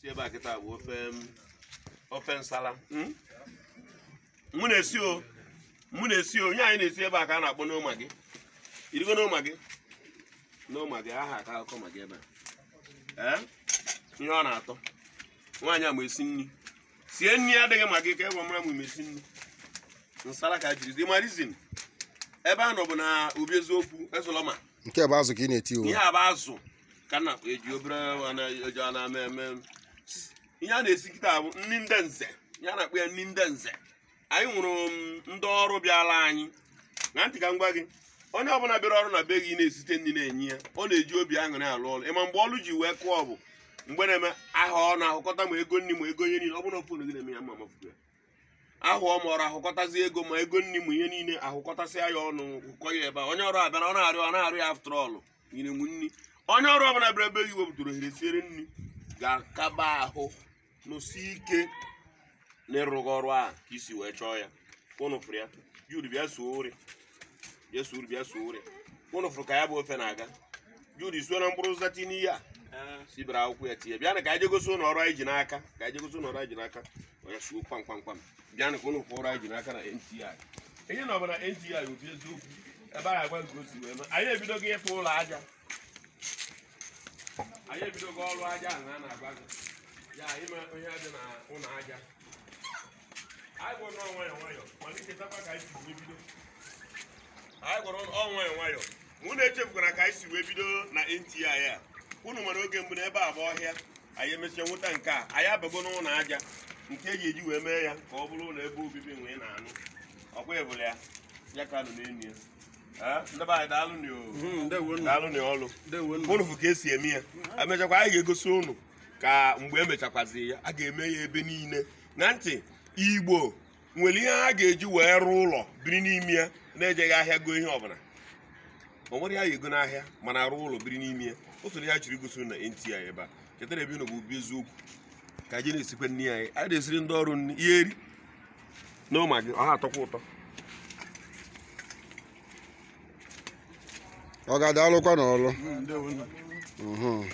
si ebe a kịta bụ ofe um, nsala hmm? mụ na-esi o mụ na-esi onye anyị na-esi ebe a ka a na-akpọ n'ụma gị irigo n'ụma gị n'ụma gị aha ka akụkọ magi ebe a eh? ihe ọ na-atọ nwaanyị a ma esi nri sie nri adịghị magi ka ịgwa e mara m mesi nri nsala ka jiri marizin ebe a nọ na eziokwu ezụlọma na-eti ihe a e na eji obere eji ihe a na-esikịta bụ nri ndị nze ya na akpụ ya nri ndị nze anyị nwụrụ um, ndị ọrụ bịala anyị na ntị ka m gwa gị onye ọbụla bịara ọrụ na be gị na-esite nri na-enye ya ọ na-eji obi aṅụrị alụ ọrụ ịma mgbe ọrụ ji wee kụọ bụ mgbe na-eme aha ọ na-ahụkọta ma ego nri ma ego ihe niile ọ bụla ofon gị na-eme ya ma mafugo ya ahụ ọ mọrọ ahụkọtazi ego ma ego nri ma ihe niile ahụkọtasịa ya ọnụ ụkọ ya ebe a onye ọrụ abịara ọ na-arịọ na-arịọ ya after nyere nri onye ọrụ ọbụla bịara ebe gị wepụtara ohere siere nri ga-akaba ahụ nụsi ike n'ịrụghị ọrụ a ka isi wee chọọ ya ụnụfụrụ ya jud bịa suo ori bịa suo ori bịa suo ori ụnụfụrụ ka ya bụ ofe na-aga jud isuo na mkpụrụ zati n'ihe a eh. bere akwụkwọ ya tinye bịa na ka anyị jegosi ụlọ ọrụ anyị ji n'aka ka anyị jegosi ụlọ ọrụ anyị ji n'aka onye suo kpam kpam kwam bịa na ka ụlọ ọrụ anyị ji n'aka na NTI ihe na ọbara NTI obi eziokwu ebe a na-agwa nke osi wee anyị ebido ebidogo ịfụ ụlọ aja anyị ebidogo ọrụ aja a na-agwa gị ya ime ihe dị na ụlọ aja anyị gwọrọ nọ nwayọ nwayọ malitetakwa ka anyị si wee bido anyị gwọrọ nọ nwayọ nwayọ unu echefukwara ka anyị si wee bido na nti a unu nwere oge mgbe n'ebe a bụ ọhịa anyị emesịa nweta nke a anyị abago n'ụlọ aja nke eji eji wee mee ya ka ọ bụrụ ụlọ ebe obibi nwee na-anụ ọkwa ebụla ya ya ka anụ n'elu ya daalụ hmm, n'ọlụ unu fụ ka esi eme ya emechakwa anyị ga-egosi unu ka mgbe emechakwazi ya a ga-eme ya ebe niile na ntị igbo nwere ihe ha ga-eji wee rụọ ụlọ biri n'ime ya na-ejeghị ahịa goo ihe ọbụla ma nwere ya ego n'ahịa mana rụọ ụlọ biri n'ime ya o ya chiri gosi na NTI ebe a chetara ebe bụ bụ eziokwu ka anyị na-esikwa nri anyị a na-esiri ndị ọrụ nri ihe eri na gị ọha atọkwa ụtọ ọ ga alụkwa n'ọlụ hmm,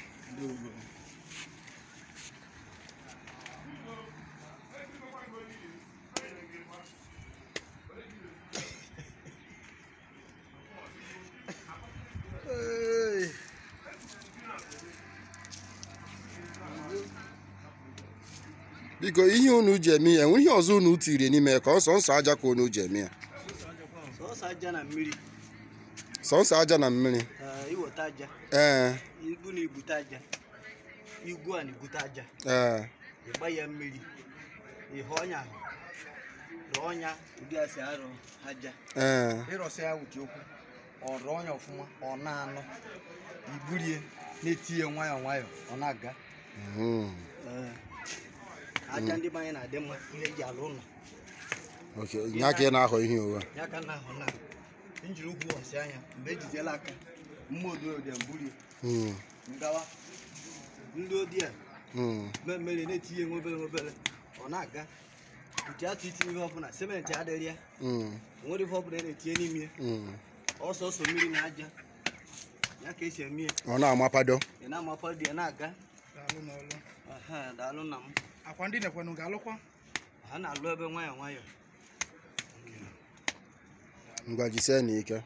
biko ihe unu ji eme ya enwe ihe ọzọ unu tiri n'ime ya ka ọsọ nsọ aja ka unu ji eme ya sọnsọ aja na mmiri ee ọrụ ọnya ọfụma ọ na anọ iburie na etinye nwayọ nwayọ ọ na-aga hmm. aja ndị mmanya na-adị mma ihe eji alụ ụlọ ya ị na-ahọ ihe ụwa ya ka na-ahọ na njiri ụkwụ ọsị anya mgbe ejidela aka mma dị mburi ngawa ndị odi a mmemme na-etinye nwe obere obere ọ na-aga nke atụ itinye ihe ọbụla simenti adịrị ya nwere ihe ọbụla na-etinye n'ime ya ọsọsọ mmiri na aja ya ka esi eme ya ọ na-amapado ị na-amapado ya na-aga daalụ na m akwa ndị na ga-alụkwa ha na-alụ ebe nwayọ nwayọ ngwa jisie na ike